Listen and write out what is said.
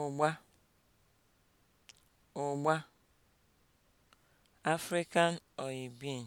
ụgba (ụgba), African soybean